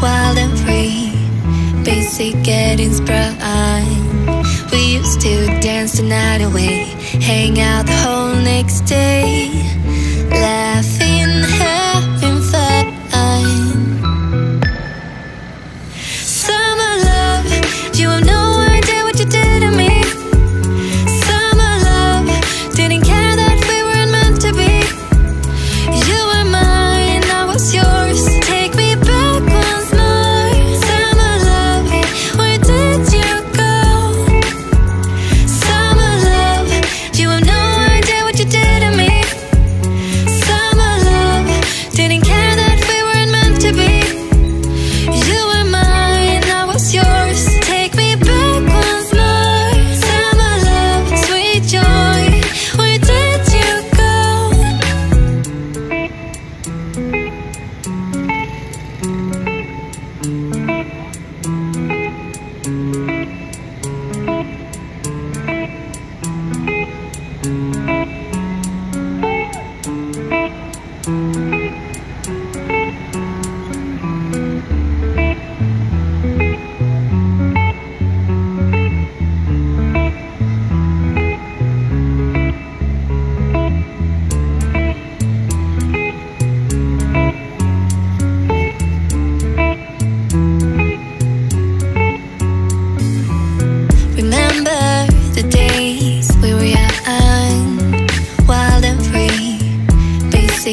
wild and free, basic getting sprung. We used to dance the night away, hang out the whole next day.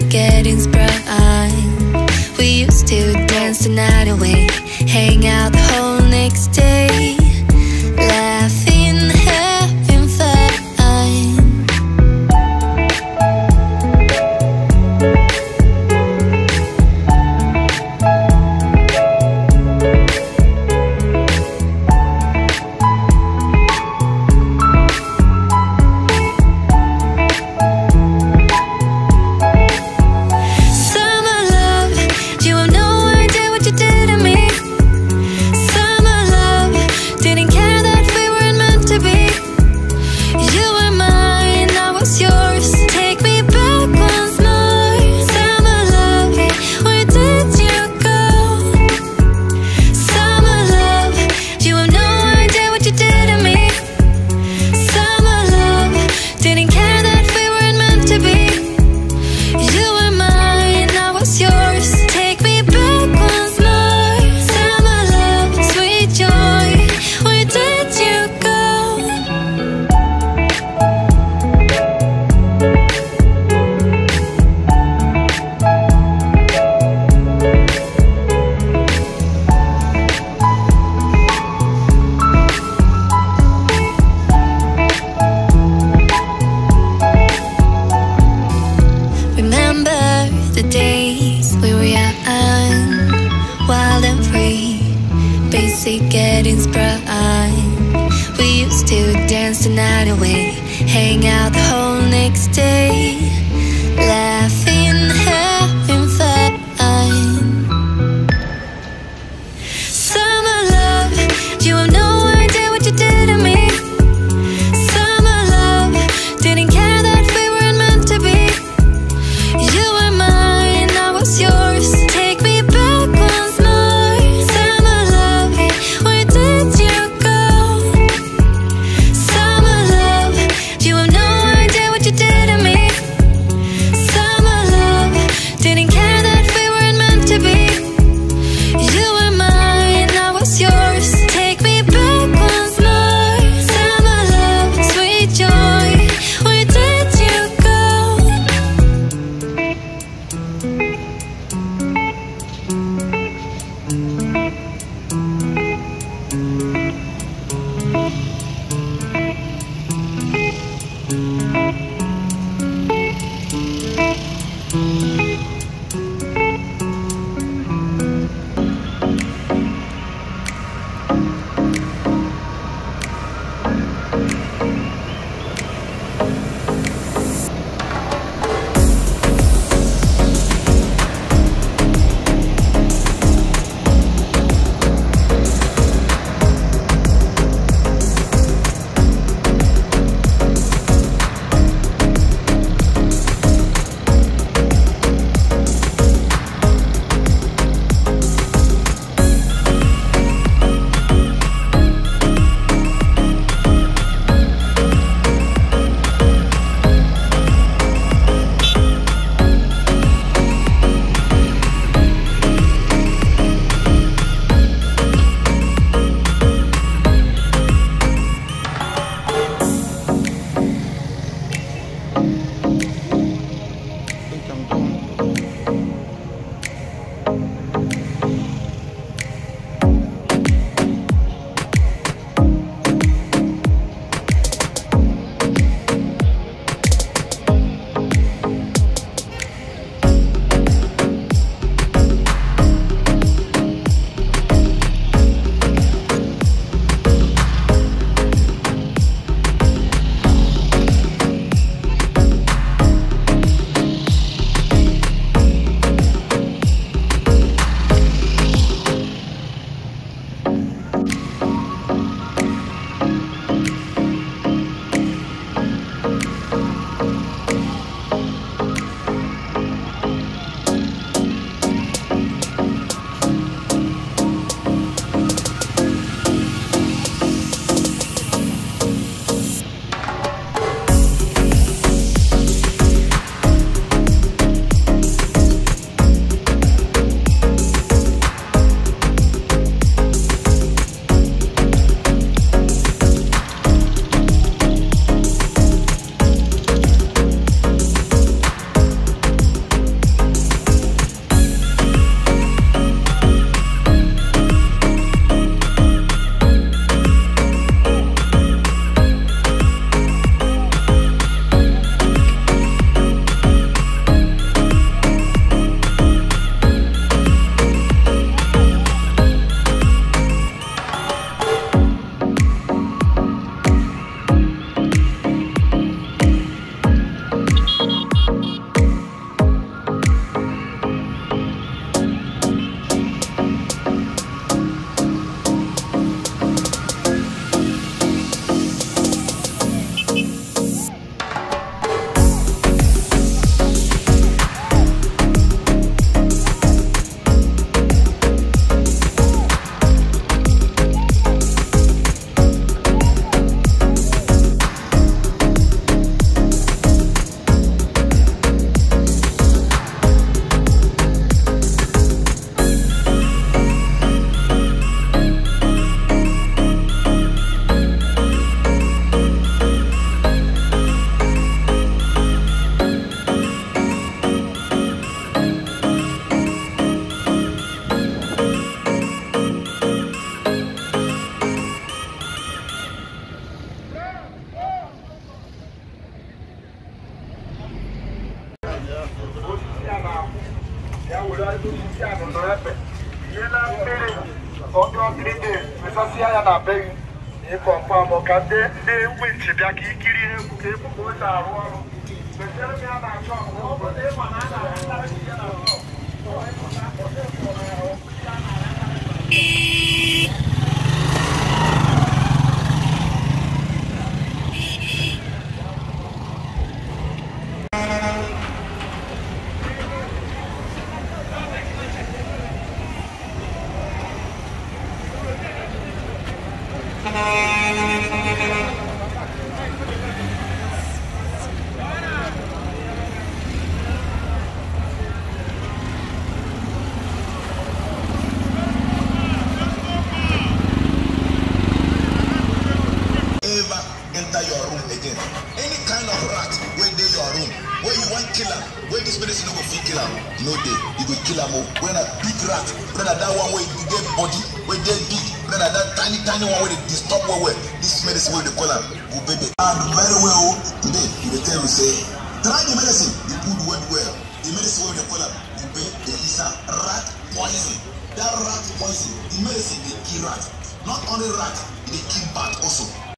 slowly getting sprung We used to dance the night away Hang out the whole next day Hang out the whole next day. ka ndị wint bịa ka ikiri egwu ka egwu ka o ji arụ ọrụ am when na big rat when that one wey e get body wey dey big when that tiny tiny one wey dey disturb well well this medicine wey we dey call am ubebe and very well o oh, today we dey tell you say try the medicine the good well well the medicine wey we dey call am ube dey is a rat poison that rat poison the medicine dey kill rat not only rat e dey kill bat also